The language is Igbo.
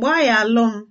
Gbaa ya alụm!